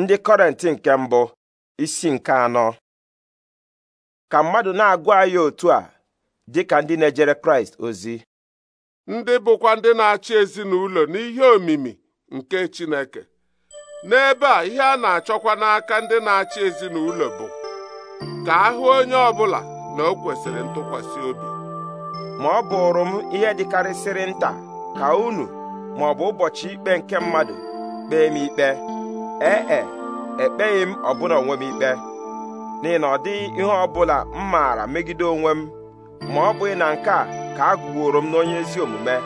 ndị kọrenti nke mbụ isi nke anọ ka mmadụ na-agụ anyị otu a dị ka ndị na-ejere kraịst ozi ndị bụkwa ndị na-achị ezinụlọ n'ihe omimi nke chineke n'ebe a ihe a na-achọkwa n'aka ndị na-achị ezinụlọ bụ ka ahụ onye ọbụla na o kwesịrị ntụkwasị obi ma ọ bụrụ m ihe dịkarịsịrị nta ka unu ma ụbọchị ikpe nke mmadụ kpee m ikpe ee e ekpeghị m ọbụla onwe m ikpe n'ihi na ọ dịghị ihe ọ bụla m maara megide onwe m ma ọ bụghị na nke a ka a gụworo m n'onye ezi omume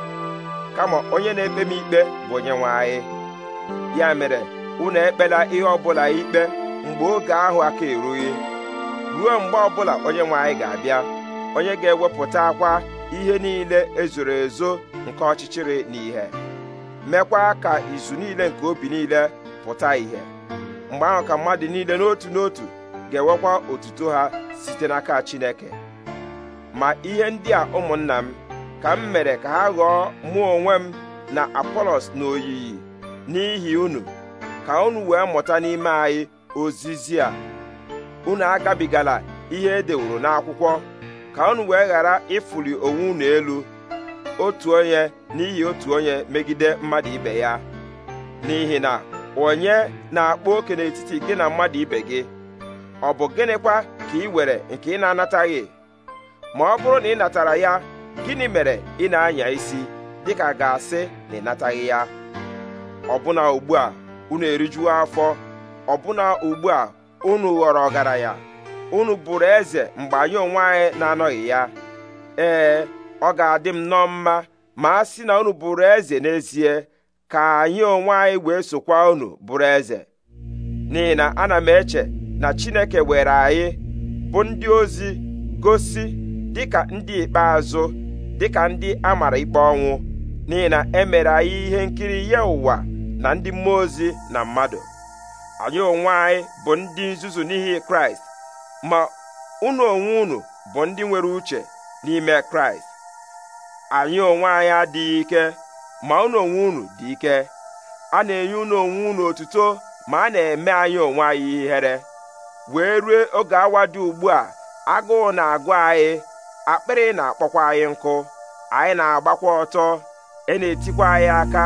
kama onye na-ekpe m ikpe bụ onye nwe anyị ya mere unu ekpela ihe ọbụla ikpe mgbe oge ahụ aka erughị ruo mgbe ọbụla onye nwe anyị ga-abịa onye ga-ewepụta akwa ihe niile ezoro ezo nke ọchịchịrị na ihe mekwa ka izu niile nke obi niile pụta ìhè mgbe ahụ ka mmadụ niile n'otu n'otu ga-ewekwa otuto ha site n'aka Chineke ma ihe ndị a ụmụnna m ka m mere ka ha ghọọ mụ onwe m na Apolos na oyiyi n'ihi unu ka unu wee mụta n'ime anyị ozizi a unu agabigala ihe edewuru n'akwụkwọ ka unu wee ghara ịfụli onwe unu elu otu onye n'ihi otu onye megide mmadụ ibe ya n'ihi na onye na-akpa oke n'etiti gị na mmadụ ibe gị ọ bụ gịnịkwa ka ị were nke ị na-anataghị ma ọ bụrụ na ị natara ya gịnị mere ị na-anya isi dịka ga-asị na ị nataghị ya ọbụna ugbu a unu erijuo afọ ọbụna ugbu a unu ghọrọ ọgaranya unu bụrụ eze mgbe anyị onwe anyị na-anọghị ya ee ọ ga-adị m nnọọ mma ma a sị na unu bụrụ eze n'ezie ka anyị onwe anyị wee sokwa unu bụrụ eze n'ihi na ana m eche na chineke were anyị bụ ndị ozi gosi dịka ndị ikpeazụ dịka ndị a mara ikpe ọnwụ n'ihi na e anyị ihe nkiri ya ụwa na ndị mmụọ ozi na mmadụ anyị onwe anyị bụ ndị nzuzu n'ihi kraịst ma unu onwe unu bụ ndị nwere uche n'ime kraịst anyị onwe anyị adịghị ike ma unu onwe unu dị ike a na-enye unu onwe unu otuto ma a na-eme anyị onwe anyị ihere wee rue oge awa dị ugbu a agụụ na-agụ anyị akpịrị na-akpọkwa anyị nkụ anyị na-agbakwa ọtọ e na-etikwa anyị aka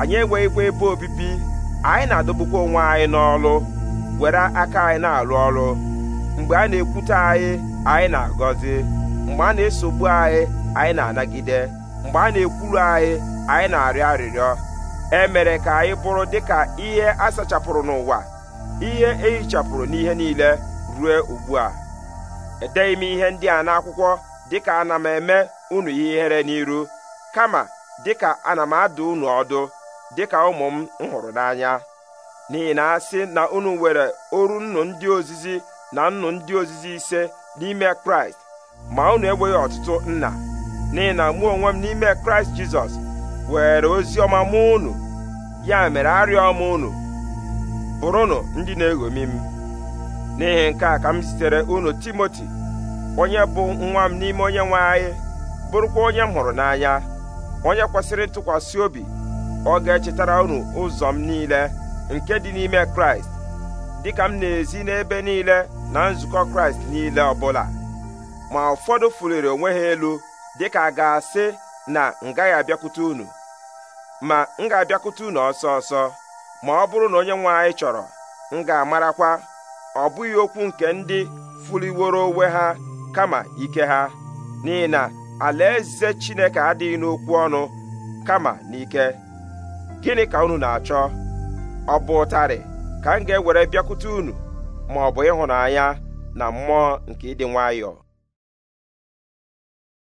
anyị enweghịkwa ebe obibi anyị na-adọbukwa onwe anyị n'ọlụ were aka anyị na-alụ ọrụ mgbe a na-ekwute anyị anyị na-agọzi mgbe a na-esogbu anyị anyị na-anagide mgbe a na-ekwuru anyị anyị na-arịọ arịrịọ e mere ka anyị bụrụ dịka ihe a sachapụrụ n'ụwa ihe ehichapụrụ n'ihe niile rue ugbu a edeghị m ihe ndị a n'akwụkwọ dịka ana m eme unu ihere n'iru kama dịka ana m adụ unu ọdụ dịka ụmụ m hụrụ n'anya n'ihi na asị na unu nwere oru nnu ndị ozizi na nnu ndị ozizi ise n'ime kraịst ma unu enweghị ọtụtụ nna n'ihi na mụ onwe m n'ime kraịst jizọs were ozi ọma mụ unu ya mere arịọ m unu bụrụnụ ndị na-eṅomi m n'ihi nke a ka m zitere unu timoti onye bụ nwa m n'ime onye nwe anyị bụrụkwa onye m hụrụ n'anya onye kwesịrị ntụkwasị obi ọ ga-echetara unu ụzọ m niile nke dị n'ime kraịst dịka m na-ezi n'ebe niile na nzukọ kraịst niile ọbụla ma ụfọdụ fuliri onwe ha elu dịka a ga-asị na m gaghị abịakwute unu ma m ga-abịakwute unu ọsọ ọsọ ma ọ bụrụ na onye nwe anyị chọrọ m ga-amarakwa ọ bụghị okwu nke ndị fuliworo onwe ha kama ike ha n'ihi na alaeze Chineke adịghị n'okwu ọnụ kama n'ike gịnị ka unu na-achọ ọ bụ ụtarị ka m ga-ewere bịakwute unu ma ọ bụ ịhụnanya na mmụọ nke ịdị nwayọọ